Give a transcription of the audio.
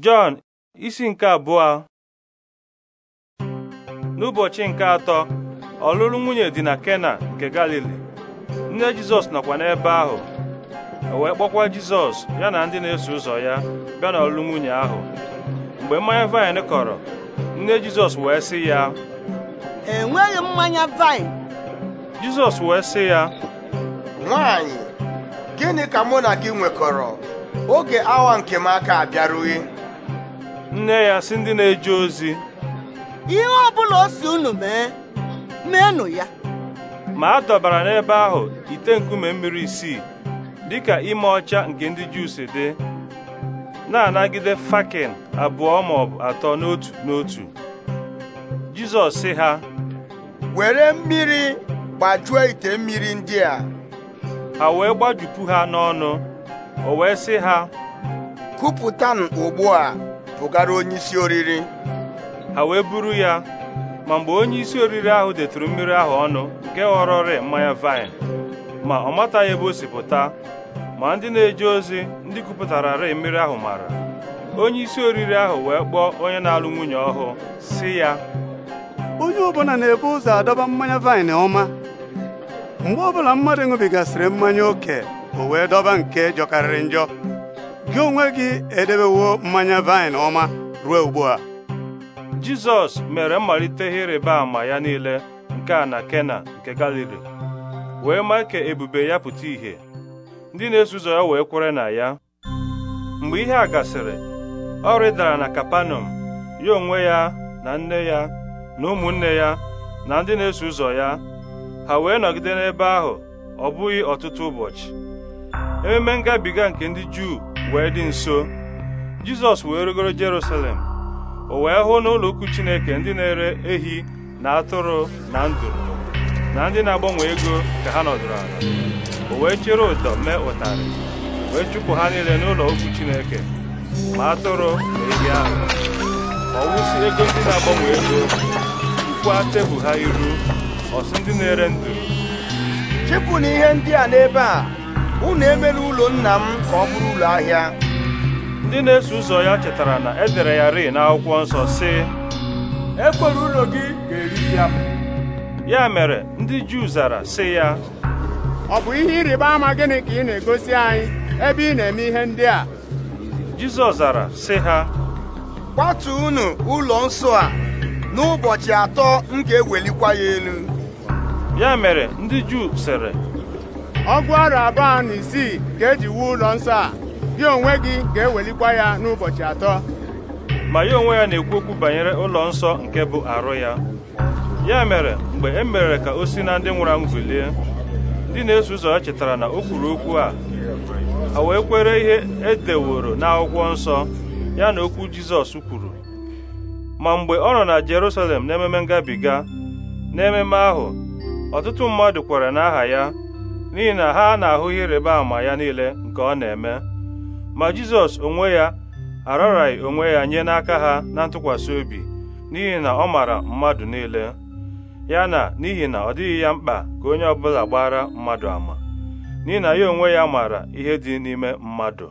Jọn isi nke abụọ n'ụbọchị nke atọ ọlụlụ nwunye dị na Kena nke Galili nne Jizọs nọkwa n'ebe ahụ wee kpọkwa Jizọs ya na ndị na-eso ụzọ ya bịa n'ọlụlụ nwunye ahụ mgbe mmanya vaịn kọrọ nne Jizọs wee sị ya enweghị mmanya vaịn Jizọs wee sị ya Nwanyị, gịnị ka mụ na gị nwekọrọ oge awa nke m aka abịarughị nne ya si ndị na-eje ozi ihe ọ bụla o si unu mee meenụ ya ma a dọbara n'ebe ahụ ite nkume mmiri isii dị ka ime ọcha nke ndị Juu dị na-anagide fakin abụọ ma atọ n'otu n'otu Jizọs sị ha were mmiri gbajuo ite mmiri ndị a ha wee gbajupu ha n'ọnụ o wee sị ha kupụta ugbu a pụgara onye isi oriri ha wee buru ya ma mgbe onye isi oriri ahụ detụrụ mmiri ahụ ọnụ nke ghọrọrị mmanya vaịn ma ọ mataghị ebe o si pụta ma ndị na-eje ozi ndị kupụtararị mmiri ahụ mara onye isi oriri ahụ wee kpọọ onye na-alụ nwunye ọhụụ si ya onye ọbụla na-ebu ụzọ adọba mmanya vaịn ọma mgbe ọbụla mmadụ ṅụbigasịrị mmanya oke o wee dọba nke jọkarịrị njọ gị onwe gị edebewo mmanya vaịn ọma ruo ugbu a Jizọs mere mmalite ịrịba ama ya niile nke a na Kena nke Galili wee maa ka ebube ya pụta ìhè ndị na-eso ụzọ ya wee kwere na ya mgbe ihe a gasịrị ọ rịdara na Kapanọm ya onwe ya na nne ya na ụmụnne ya na ndị na-eso ụzọ ya ha wee nọgide n'ebe ahụ ọ bụghị ọtụtụ ụbọchị ememe ngabiga nke ndị Juu wee dị nso jizọs wee rigoro jerusalem o wee hụ n'ụlọ ukwu chineke ndị na-ere ehi na atụrụ na nduru na ndị na-agbanwe ego ka ha nọdụrụ ala o wee chere ụdọ mee ụtarị wee chụpụ ha niile n'ụlọ okwu chineke ma atụrụ na ehi ahụ ọ wụsị ego ndị na-agbanwe ego kwụkwa tebụl ha iru ọsị ndị na-ere ndụ chịpụ na ihe ndị a n'ebe a unu emela ụlọ nna m ka ọ bụrụ ụlọ ahịa ndị na-eso ụzọ ya chetara na edere ya ri n'akwụkwọ nsọ sị ekwere ụlọ gị ga-eri ya ya mere ndị Juu zara sị ya ọ bụ ihe ịrịba ama gịnị ka ị na-egosi anyị ebe ị na-eme ihe ndị a Jizọs zara sị ha kwatu unu ụlọ nsọ a n'ụbọchị atọ m ga-ewelikwa ya elu ya mere ndị Juu sịrị ọgụ ọrụ abụọ na isii ka eji wuo ụlọ nsọ a gị onwe gị ga-ewelikwa ya n'ụbọchị atọ ma ya onwe ya na-ekwu okwu banyere ụlọ nsọ nke bụ arụ ya ya mere mgbe e mere ka o si na ndị nwụrụ anwụ bilie ndị na-eso ụzọ ya chetara na o kwuru okwu a a wee kwere ihe e edeworo n'akwụkwọ nsọ ya na okwu Jizọs kwuru ma mgbe ọ nọ na Jerusalem n'ememe ngabiga n'ememe ahụ ọtụtụ mmadụ kwere n'aha ya n'ihi na ha na-ahụ ihe ịrịba ama ya niile nke ọ na-eme ma Jizọs onwe ya araraghị onwe ya nye n'aka ha na ntụkwasị obi n'ihi na ọ maara mmadụ niile ya na n'ihi na ọ dịghị ya mkpa ka onye ọ bụla gbara mmadụ ama n'ihi na ya onwe ya maara ihe dị n'ime mmadụ